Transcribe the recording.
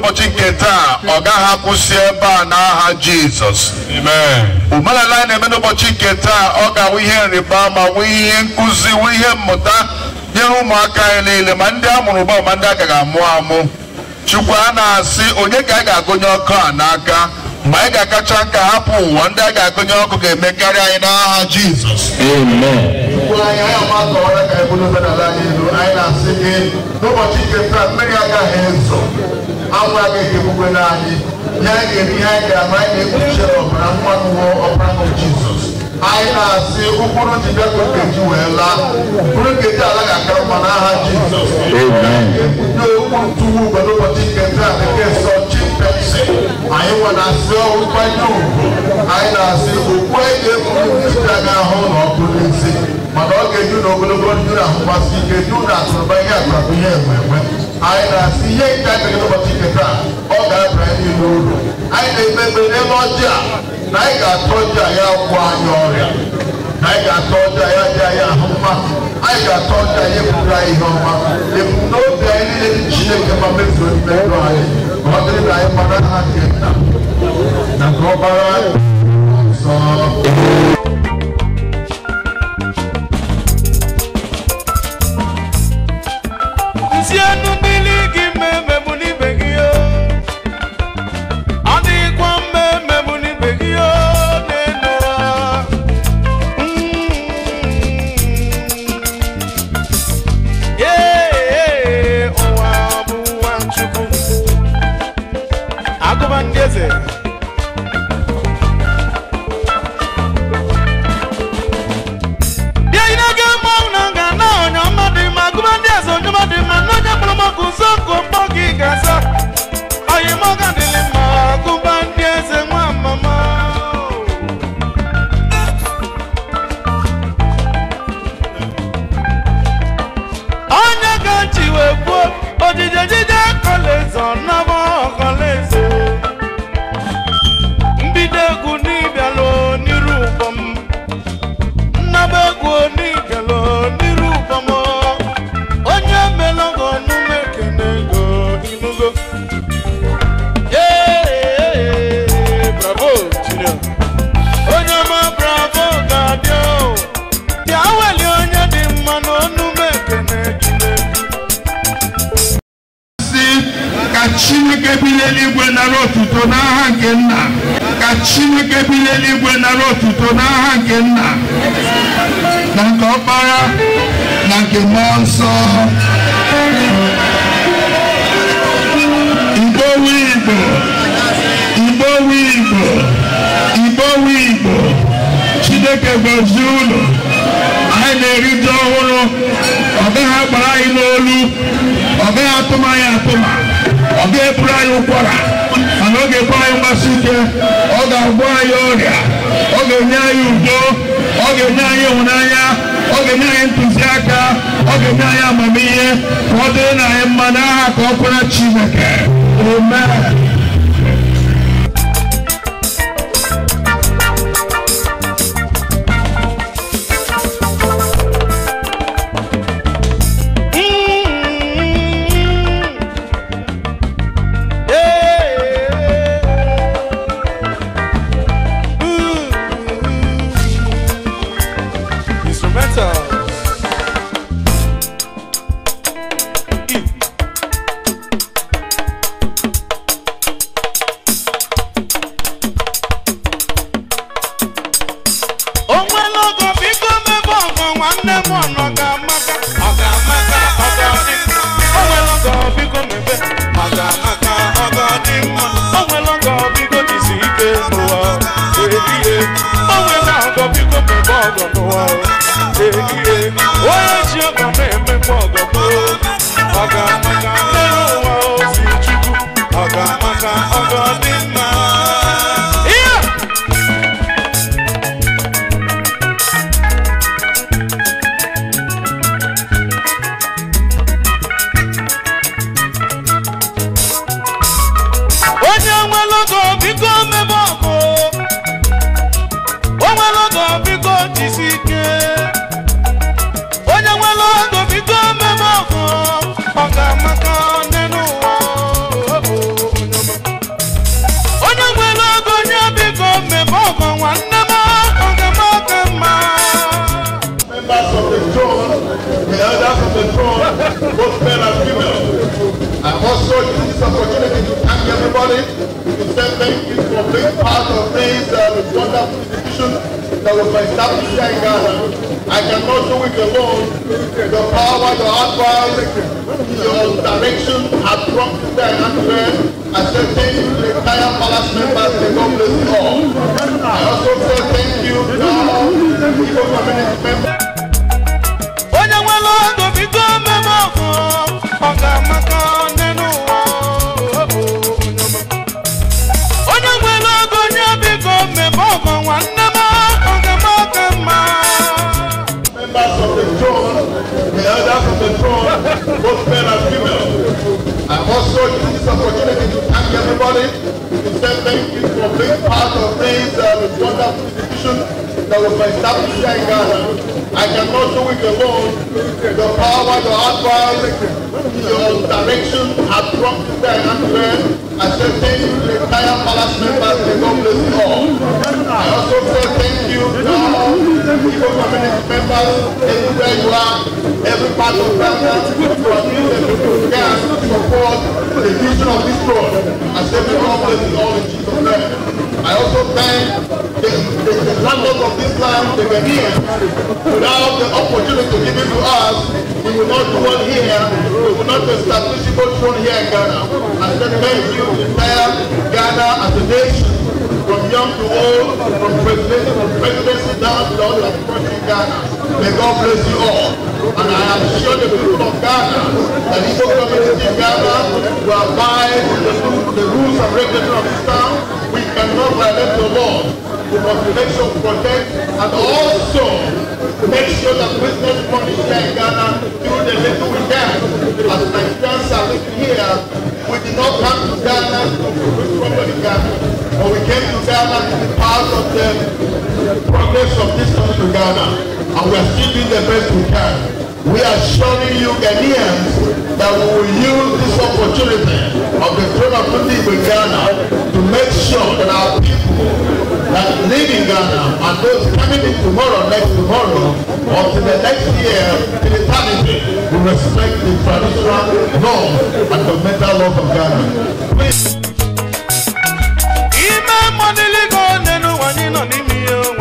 n'ụbọchị nke taa ọ gaghị akwụsị ebe a n'aha Jizọs omenala anyị na-eme n'ụbọchị nke taa ọ ga-awụ ihe nrịba ma nwee ihe nkụzi nwee ihe mmụta nyere ụmụaka anyị niile ma ndị a mụrụ ụba ma ndị agaghị amụ amụ Chukwu a na-asị onye ka anyị ga-agụnye ọkụ a n'aka ma anyị ga-akacha nka hapụ ụwa ndị a ga-agụnye ọkụ ga-emekarị anyị n'aha Jizọs anyị n'ụbọchị nke taa mmiri agaghị ezo anwa ga ebi gbogbo n'anyị ya ga-ebi ha ga-ama anyị na-ekpuchi ọbara nwa nwụọ ọbara nwa jizọs anyị na-asị ụkpụrụ ji bịa ka okeji wee laa ụkpụrụ nkeji ala ga-akara mma n'aha jizọs ndị ụkpụrụ tuwu ugbe n'ụbọchị nke taa nke nsọ chimpepsi anyị nwa na-asị ọrụ nkwanye ugwu anyị na-asị okpu anyị ga-ekwuru nchita gị ahụ na ọkụ n'isi mana ọ ga-eju na ogologo ndụ na ahụkwasị ike ndụ na akụrụba ihe akụrụba ihe enwe enwe anyị na-asị ihe nke a ga-eme ụbọchị nke taa ọ ga-abịa anyị n'ụlọ anyị na-emegbe n'ebe ọjị a na anyị ga-atụ ọjị a ya gwọ anyị ọrịa na anyị ga-atụ ọjị a ya dị anyị ahụ mma anyị ga-atụ ọjị a ya eburu anyị ihe ọma ebumnobi anyị niile dị chineke ma mezuo mmerụ anyị ma ọ dịrị na anyị mara ha nke nna na nke ọbara nara otuto n'aha nke nna ka chineke bi n'eluigwe nara otuto n'aha nke nna na nke ọkpara na nke mmụọ nsọ igbo igbo igbo igbo igbo igbo chineke gọzie ụlọ anyị na-erite ọhụrụ ọ gaghị agbara anyị n'olu ọ gaghị atụm anyị atụm ọ ga-eburu anyị ụkwara mana ọ ga-ebu anyị mgbasi ike ọ ga-agwọ anyị ọrịa ọ ga-enye anyị udo ọ ga-enye anyị ịhụnanya ọ ga-enye anyị ntụziaka ọ ga-enye anyị amamihe ka ọ dịrị na anyị mma aha ka ọ kwere Chineke amen nwanne m ọ ga-amaka ọ ga-amaka ọ ga-adị o nwere oge ọ biko mebe ọ o nwere oge ọ biko jisi ike o nwere ọgọ biko mebe ọgọ n'ụwa ehihie onye ji ọgọ na it. We say thank you for being part of this uh, wonderful institution that was established here in Ghana. I cannot do it alone. the power, the advice, your direction has brought to the answer. I say thank you to the entire palace members and God bless all. I also say thank you to all people community members. Onye nwe ọdụ bido mmemme ọgụ ọga maka constitution that was established in Ghana. I cannot do it alone. The power, the advice, the direction have brought to the atmosphere, accepting the entire palace members, the God bless you all. I also say thank you every government member, everywhere you are, every part of Ghana, to appeal and to support the vision of this road as they become blessed all in Jesus' name. I also thank the, the, the landlords of this land, They the here without the opportunity given to us, we will not do one here, we will not establish a throne here in Ghana. I say thank you, entire Ghana as a nation from young to old, from presidency from down to all the approaching Ghana. May God bless you all. And I am sure the people of Ghana, the Igbo community in Ghana, will abide the, the rules and regulations of Islam. We cannot violate the law. We must make sure protect and also make sure that business money here in Ghana do the little we can. As friends are living here, we did not come to Ghana to do problem in Ghana. When we came to Ghana, this is part of the progress of this country to Ghana. And we are still doing the best we can. We are showing you Ghanaians that we will use this opportunity of the throne of Tunde in Ghana to make sure that our people that live in Ghana and those coming in tomorrow, next tomorrow, or to the next year, to eternity, will respect the traditional norms and the mental laws of Ghana. Please. não ní mi